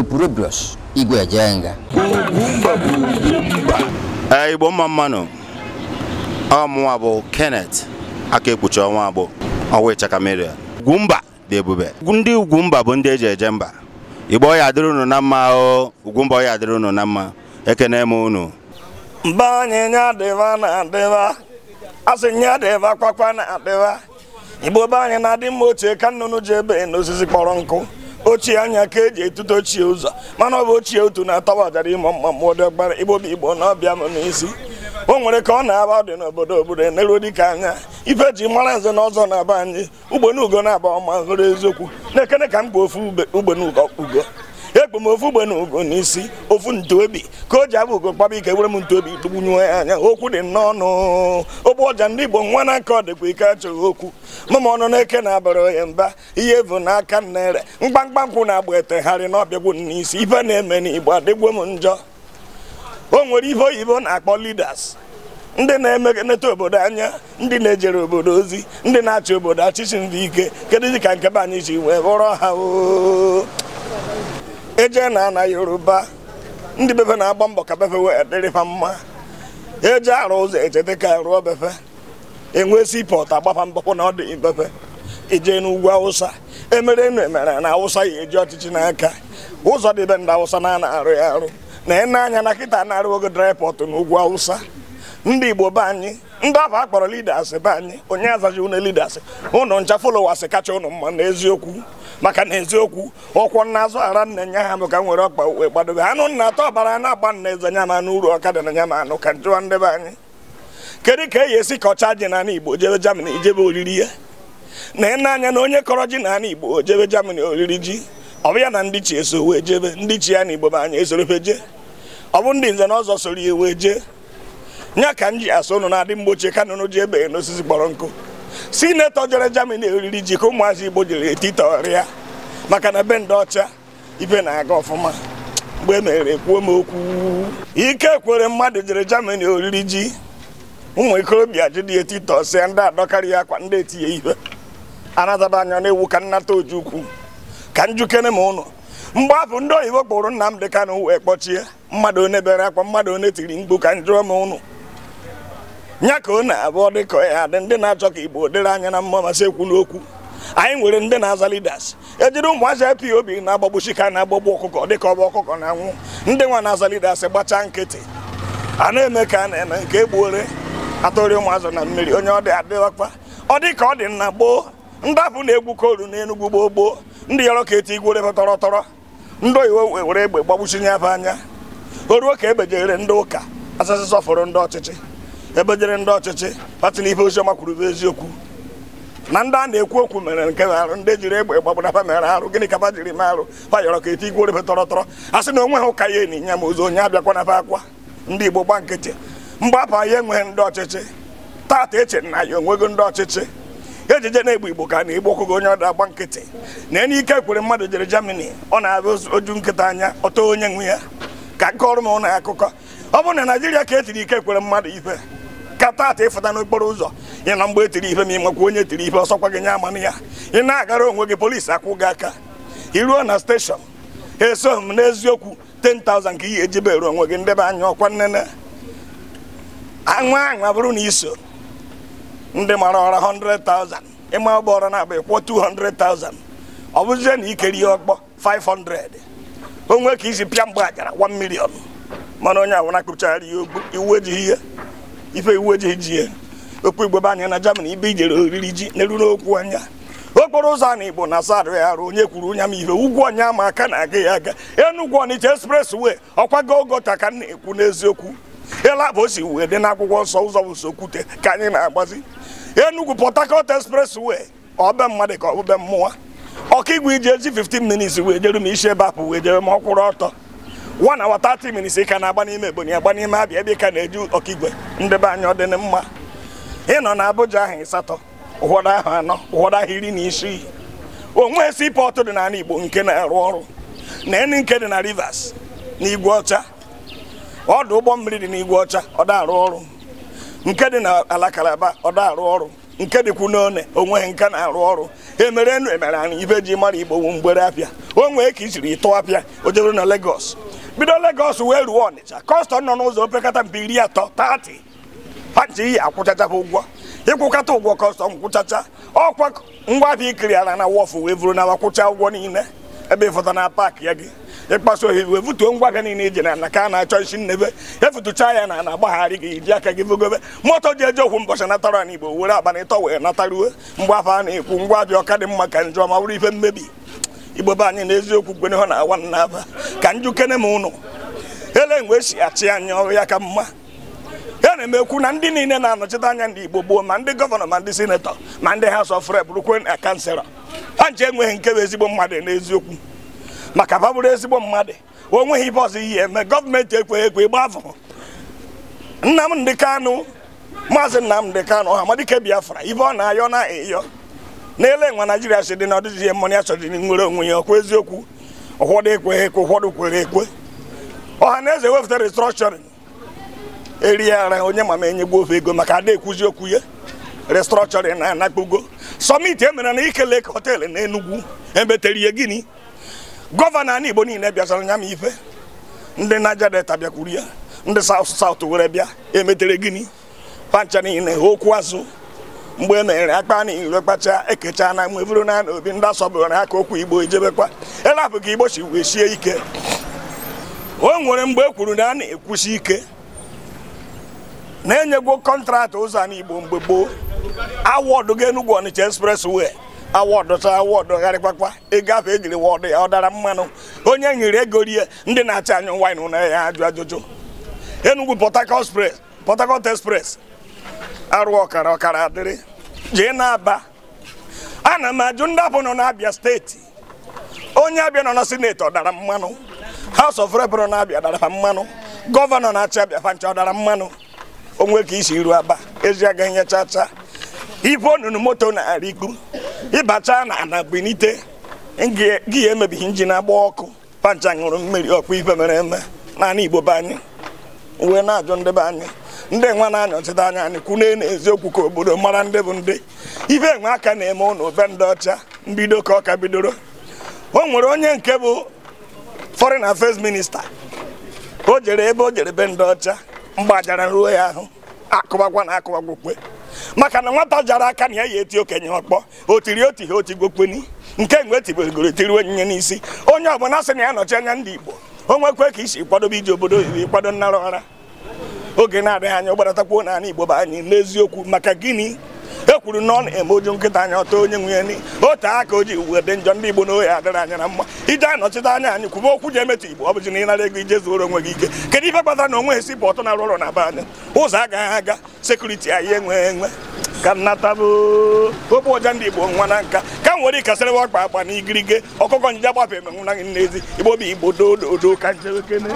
opurobios igwe ejenga igbo mma mmanụ ọmụnwa bụ Kenneth aka ekpuchi ọnwa agbụ ọwa ịchakameria Ugwumba dị ebube ndị Ugwumba bụ ndị eji eje mba igbo ọya adịrị unu na mma o Ugwumba ọya adịrị unu na mma ekene m unu mba anyịnya dịva na adịva asị nya dịva kwakwa na adịva igbo be anyị na-adị mma ochie ka nnụnụ ji ebe n'osisi kpọrọ nkụ ochie anya ka eji etuto ochie ụzọ mana ọ bụ ochie otu na-atawa ọjara ịmụ mma mmụọ dị ọgbara igbobi igbo na ọbịa m n'isi o nwere ka ọ na-aba dị n'obodo obodo eneruo dịka anya ife ji mara nze na ọzọ na-aba anyị ugbo na-aba ọma hụrụ eziokwu na-ekene ka m ofu ugbonugo ugo ekpo m ofu ugbe na ugo n'isi ofu ntuobi ka o ji abụ ugo kpaba ike were m ntuobi tụgbunyuo ya anya okwu dị n'ọnụ ogbe ọja ndị igbo nwa na aka ọ dịkwa ike achọghị okwu mama ọnụ na-eke na abara ya mba ihe bụ n'aka nnere mgbamgba nkwụ na-agba etegharị n'ọbịagbu n'isi ife na-eme n'igbo adịgbo m njọ o nwere ihe oyibo na-akpọ lidas ndị na-emekaneta obodo anya ndị na-ejere obodo ozi ndị na-achị obodo achịchị ndị ike kedụ dị ka nkebe anyị ji wee bụrụ ha o eje na ana yoruba ndị befe na-agba mbọ ka befe wee dịrịfa mma eje arụ ụzọ eje ka rụọ befe enwe sipọtụ agbapa mbọpụ na ọ dị befe ije n'ugwu awụsa emere enu emere na awụsa ya eji ọchịchị n'aka ụzọ dị be ndị awụsa na-ana arụ ya arụ na ịna anya na kịta na-arụ ogo draịpọtụ n'ugwu awụsa ndị igbo be anyị ndị ahụ a kpọrọ leaders be anyị onye azaghị ụnụ lidas ụnụ ncha followers kacha ụnụ mma n'eziokwu maka na eziokwu nna n'azụ ara nna nya ha bụ ka m nwere ọkpa uwe gbadobe anụ nna atọ ọbara na-agba nna eze nya ma n'uru ọkada na nya ma anụ ka njụwa ndị be anyị kedu ka e yi esi ka ji n'ala igbo jebe jamani jebe oriri ya na ị na-anya na onye kọrọ ji n'ala igbo jebe jamani oriri ji ọ bụ ya na ndị chi eso wee jebe ndị chi ya na igbo be anyị esorobe je ọ bụ ndị nze na ọzọ soro ya wee jee nya ka m ji asa ụnụ na-adị mgbochie ka nụnụ ji ebeghị n'osisi kpọrọ nkụ sinetọ jere Germany oriri ji ka ụmụazị Igbo jiri etitọrịa maka na be ndị ọcha ibe na-aga ọfụma mgbe e mere ekwuo m okwu ike kwere mmadụ jere Germany oriri ji ụmụ ikorobịa dị etitọ sịa ndị ya akwa ndị etinye ihe anataba anya na-ewu ka nnata oji ukwu ka njukene ma ụnụ mgbe afụ ndị oyibo kpụrụ dị Kanụ wee kpọchie mmadụ onye bere akwa mmadụ onye tiri mgbu ka njụọ ma ụnụ nya ka ọ na-abụ ọ ya dị ndị na-achọ ka igbo dịrị anya na mma masị ekwu n'okwu anyị nwere ndị na-aza lidas ejiri ụmụazị obi na-agbagbuchi ka na-agbagbu ọkụkọ dịka ọba ọkụkọ na-anwụ ndị nwa na-aza lidas gbachaa nkịtị a na-eme ka a na-eme nke egbuore atụrị ụmụazị na mmiri onye ọ dị adịghọkpa ọ dị ka ọ dị na gboo ndapụ na-egbu koolu na enugwu gboo gboo ndị yọrọ ka eti igwere tọrọ tọrọ ndị oyiwo were egbe gbagbuchi nye anya o ruo ka egbejere ndị ụka asasị sọfụrụ ndị ọchịchị ebe jere ndị ọchịchị kpatịla ife oziọma kwuru bụ eziokwu na ndị a na-ekwu okwu mere nke arụ ndị jiri egbe gbagbara mere arụ gịnị ka fa jiri mee arụ fa yọrọ ka ete igwe orebe tọrọ tọrọ a sị na onwe ha ụka ya enyi ya ma ozu onye abịakwa na akwa ndị igbo gba nkịtị mgbapụ ya enweghị ndị ọchịchị tata eche na ya onwego ndị ọchịchị ejije na-egbu igbo ka na igbo kwụgo onye ọda agba nkịtị na enye ike kwere mmadụ jere Germany ọ na-abịa oju nkịta anya ọtọ onye nwe ya ka nke ọrụ m na akụkọ ọ bụrụ na naijiria ka e tiri ike kwere mmadụ ife aka taata ịfụta n'okporo ụzọ ị na mgbe etiri ife ma ị makwa onye tiri ife ọsọkwa gị nye amana ya ị na-agara onwe gị polisi akwụ gị aka iruo na steshọn eso m n'eziokwu 10,000 ka ihe ejibere onwe gị ndebe anya ọkwa nnene anwa anwa bụrụ na iso ndị mara ọra 100,000 ịma ọgba ọra na abụ ịkwụọ 200,000 ọ bụzie na ikeri ihe ọkpọ 500 onwe ka isi pịa mgbe ajara 1 million mana onye awụ na-akpụchagharị iwu ejighị ihe ife iwu eji ji ya okpu igbo be anya na Germany ibe ijere oriri ji n'elu n'okwu anya okporo ụzọ a na igbo na asara ya arụ onye kwuru onye ama ife ugwu ọnya ama aka na aga ya aga Enugu Ọnịcha express way ọkwago ogota ka na-ekwu n'eziokwu elabụ o si wee dị n'akwụkwọ nsọ ụzọ bụ sokwute ka anyị na-agbazi Enugu Port Harcourt express way ọbe mmadụ ka ọbụbe mmụọ ọkaigwe igwe iji ezi 15 minutes wee jere m isi ebe apụ wee jere m ọkwụrụ ọtọ one hour 30 minutes ị ka na-agba n'ime Ebonyi agba n'ime Abịa ebe ka na-eji ọkaigwe ndebe anya ọ mma ị nọ na abụja ahụ ịsatọ ụfọdụ ahụ anọ ụfọdụ ahụ iri na isii onwe sii pọtụ dị n'ala Igbo nke na-arụ ọrụ na enyi nke dị na Rivers na Igwe Ọcha ọdụ ụgbọ mmiri dị n'Igwe Ọcha ọ arụ ọrụ nke dị na alakalaba Kalaba ọ arụ ọrụ nke dịkwu n'one onwe nke na-arụ ọrụ emere enu emere anyị ibe ji mara Igbo mgbere apịa o nwee ka i jiri ịtụ o jebere na legos bido Lagos wee ruo Ọnịcha kọstọm nọ n'ụzọ opekata mpe iri atọ tati ha nji iyi ụgwọ ịkwụkata ụgwọ kọstọm kwụchacha ọkwa ngwa bịa ikiri ala na wọfụ wee vuru n'ala ụgwọ niile ebe ịfụta na paakị ya gị ịkpaso ohi wee futuo ngwa bịa niile ije na ka a na-achọ isi nnebe efutucha ya na na-agbagharị gị iji aka gị vogobe moto ji eje okwu mbọchị natara n'Igbo were abalị ịtọ wee nataruo mgbe afọ a na-ekwu ngwa bịa ọka dị mma ka njọ ma bụrụ ife mmebi igbo be anyị na eziokwu ha na awa aba ka njukene m ụnụ ele mgbe esi achị anyị ọrụ ya ka mma ya na-emekwu na ndị niile na-anọchite anya ndị igbo gboo ma ndị gọvanọ ma ndị sinetọ ma ndị ha of bụrụkwe akansera na kanselọ ha nche enweghị nke bụ ezigbo mmadụ e n'eziokwu maka ba bụrụ ezigbo mmadụ o nweghị ibe ọzọ ihe eme gọọmenti ekweghị ekwe ịgba afọ Nnamdi Kanu maazị Nnamdi Kanu Ọhamadike Biafra ibe ọ na-ayọ na ịyọ n'ele nwa naijiria si dị na ọdịzi mmọnụ ya nwere onwe ya ọkwa eziokwu ụfọdụ ekweghị ekwe ụfọdụ kwere ekwe ọha na eze wepụta restrọkshọrin eri ara onye ma ma enyegbu ofe ego maka ada ekwuzi okwu ya restrọkshọrin na anakpugo sọmiti e mere na ikele ka họteelụ na enugwu emetere ihe gịnị gọvanọ ana igbo niile bịazara nya ma ife ndị naija deta bịakwuru ya ndị saut saut were bịa emetere gịnị pancha niile okwu azụ mgbe na e akpa na iro kpacha ekecha na mgbe na obi ndị asọbụrụ na aka okwu igbo ijebekwa e elapụ ka igbo si wee sie ike o nwere mgbe e kwuru na a na-ekwusi ike na-enyegwo kọntraktị ụzọ a igbo mgbe gboo awọdụ ga Enugu Ọnịcha wee awọdụ ta awọdụ gharịkpakpa ịgafe egiri wọdụ ya ọ dara mmanụ onye nyere ego rie ndị na acha anyụ wine na ya ajụ ajụjụ Enugu Port Harcourt arụ ọkara ọkara adịrị jee n'aba ana m ajụ ndị abụ nọ n'abịa steeti onye abịa nọ na sineti ọ dara mmanụ haus of rep na n'abịa dara mmanụ gọvanọ na acha abịa fancha ọ dara mmanụ onwe ka isi iru aba ezi aga ihe chacha ibe onunu moto na-arị ịbacha na ana benite gị ya emebighị injin agba ọkụ pancha ṅụrụ mmiri ọkpụ ife mere eme naanị igbo be anyị wee na-ajụ ndị be anyị ndị nwa na-anyọchite anya anyị kwune n'eziokwu ka obodo mara ndị bụ ndị ibe nwe aka na-eme ụnụ be ndị ọcha mbido ka ọka bidoro o nwere onye nke bụ foreign affairs minista o jere ebe o jere be ndị ọcha mgbajara ruo ya ahụ akụbakwa na akụbakwukwe maka na nwata jara aka na ya ya eti okenye ọkpọ o tiri otihe otigbokpeni nke nwe tibegoro tiri onyinye n'isi onye ọbụla sị na ya nọchi anya ndị igbo o nwekwe ka isi kwadobe iji obodo oyibo kwado nnara ọra oge na-adịghị anya ụgbaratakwu n'ala igbo bụ anyị n'eziokwu maka gịnị ekwuru na ọ na-eme oju nkịta anya ọtọ onye nwunye ya ni aka o ji uwe dị njọ ndị igbo na ohi adịrị anya na mma ije anọchite anya anyị kwuba okwu ji emetụ igbo ọ bụji na ịnara ego ije zuoro onwe gị ike kedu ife kpatara na onwe esi pọtụ na-arụ na be anya ụzọ agaghị aga sekuriti anyị enweghị enwe ka nnatabụ kopu ọja ndị igbo nwa na nka ka m were ikasịrịwa ọkpa akpa na igirige ọkụkọ njija gbafe gị n'ezi igbo bụ igbo doo ka njewekene